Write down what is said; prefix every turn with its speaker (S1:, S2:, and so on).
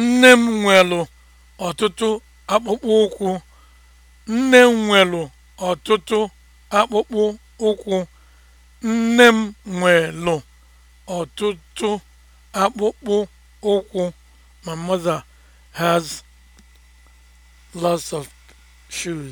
S1: Nne m nwelu ọtụtụ akpụkpọ ụkwụ. Nne m nwelu ọtụtụ akpụkpọ ụkwụ. m nwelu ọtụtụ akpụkpọ ụkwụ. My mother has lots of shoes.